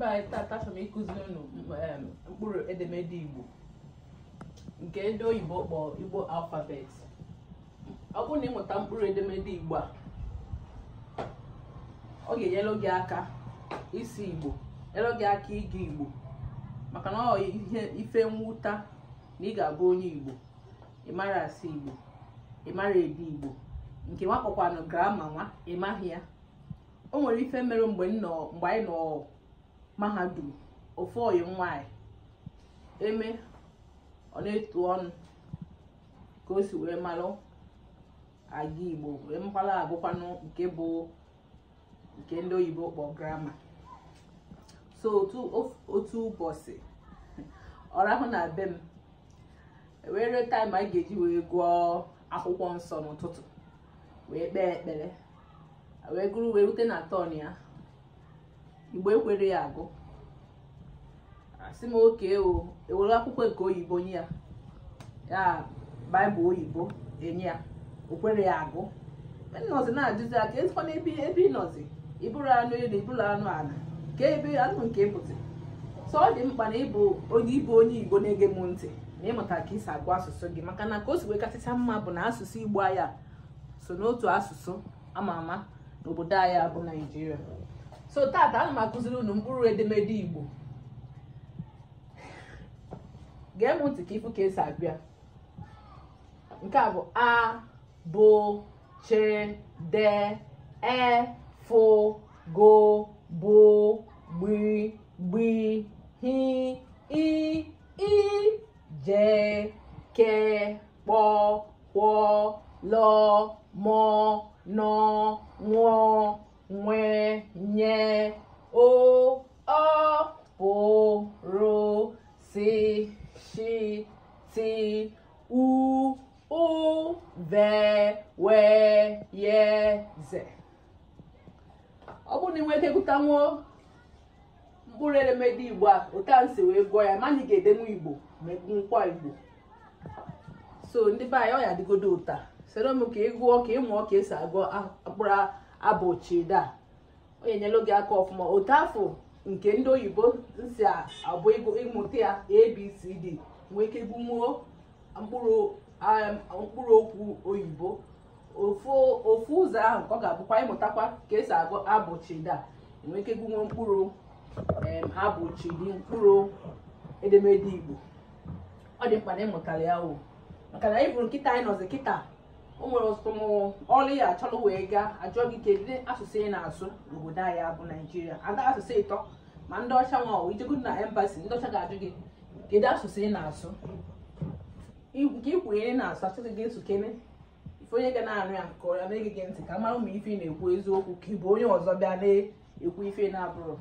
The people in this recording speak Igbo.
ebe anyị tata achọrọ m ịkụziri unu um, mkpụrụ edemede igbo nke ndị oyibo kpọọ igbo alfabet ọ bụrụ na ịmụta mkpụrụ edemede igbo a ọ ga enyere gị aka isi igbo enyere gị aka ịga igbo maka na ọ ihe ife mwụta na ị ga-abụ onye igbo ịmara asị igbo ịmara ede igbo nke nwakpọkwanụ grama nwa ịmaghị ya o nwere ife mere mgbe anyị nọ mahadum ofu oyi nwanyị eme ọ etu ọnụ ka o si wee malụ aga igbo wee mkpala abụkwanụ nke bụ nke ndị oyibo kpọ grama so otu ụbọchị ọrahụ na be m e wee ree taịm anyị ga-eji wee gụọ akwụkwọ nsọ n'ụtụtụ wee kpee ekpere wee gụrụ wee rute na tọn ya igbo ekwere ya agụ asị m oke ewere akwụkwọ nke oyibo nye ya ya baịbụl oyibo enye ya okwere ya agụ Nnọzi e na-ajụzi aka ezikwana ebe ebe ịnọzi ịbụrụ anụ elu ịbụrụ anụ ala ka ebe anụ nke ịpụtị sọ ọ dị mkpa na ịbụ onye ịbụ onye igbo na-ege m ntị na ịmụta ka isi agụ asụsụ gị maka na ka o si wee mma bụ na asụsụ igbo aya so n'otu asụsụ ama ama n'obodo anyị bụ naijiria so tata ana m akụziri unu mkpụrụ edemede igbo gee m ntị ka ịfụ ka esi abịa nke a bụ a bụ che de e fụ go bụ gbi gbi hi i i je ke kpọ kwọ lọ mọ nọ nwụọ nye o ọ pụrụ si shi ti u u ve we ye ze ọ bụrụ na ị nwere mkpụrụ edemede igbo a otu a nsi wee gụọ ya ma ga-edenwu igbo ma egwunkwa igbo so ndị be anyị ọ ya adịgodo ụta soro ka ị gụọ ka ị mụọ ka esi agụ akpụrụ abụ chida onye nyelu gị aka ọfụma otu afọ nke ndị oyibo si abụ ịmụta ya abcd nwee ike gụmuo um, mkpụrụ okwu oyibo ofu ụzọ ahụ ka ọ ga-abụkwa ịmụtakwa ka esi agụ abụchida nwee ike gụnwuo mkpụrụ um, abụchidi mkpụrụ edemede igbo ọ dị mkpa na ịmụtara ya o maka na ịbụrụ nkịta anyị nọzi kịta o nwere ọtụtụ ọrụ ya achọrọ wee gaa ajụọ gị kedu asụsụ ị na-asụ n'obodo anyị bụ naijiria ada asụsụ ịtọ ma ndị ọcha nwa ijegodu na embasi ndị ọcha ga-ajụ gị kedu asụsụ ị na-asụ nke ikwuru ihe na-asụ achọghị gị nsukene ife onye ga na-anụ ya nke ọya na-ege gị ntị ka mara ma ife ị na-ekwu eziokwu ka ị bụ onye ọzọ bịa na-ekwu ife na-abụrụ